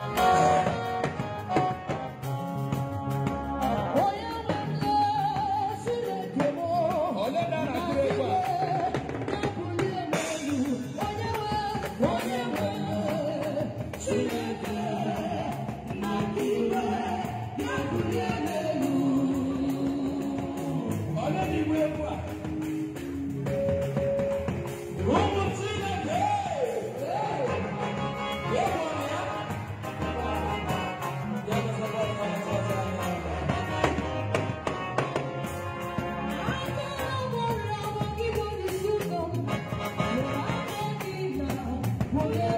Oh. Holy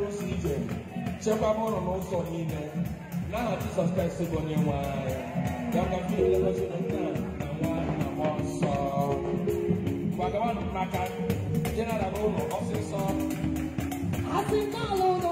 ozi ije chekwaba ụlọ n'ụzọ niile n'aha jizọs kraịst bụ onye nwe anyị ya ka mfe elegozi na nna na nwa na mmụọ nsọ gbagawanụ n'aka jeneralụ ụlọ ọsịsọ asị n'ala